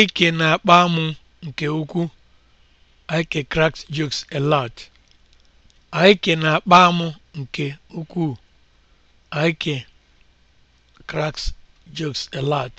ike na-akpa nke ukwuu. ike cracks jokes a lot. na-akpa m nke ukwuu. cracks jokes a lot.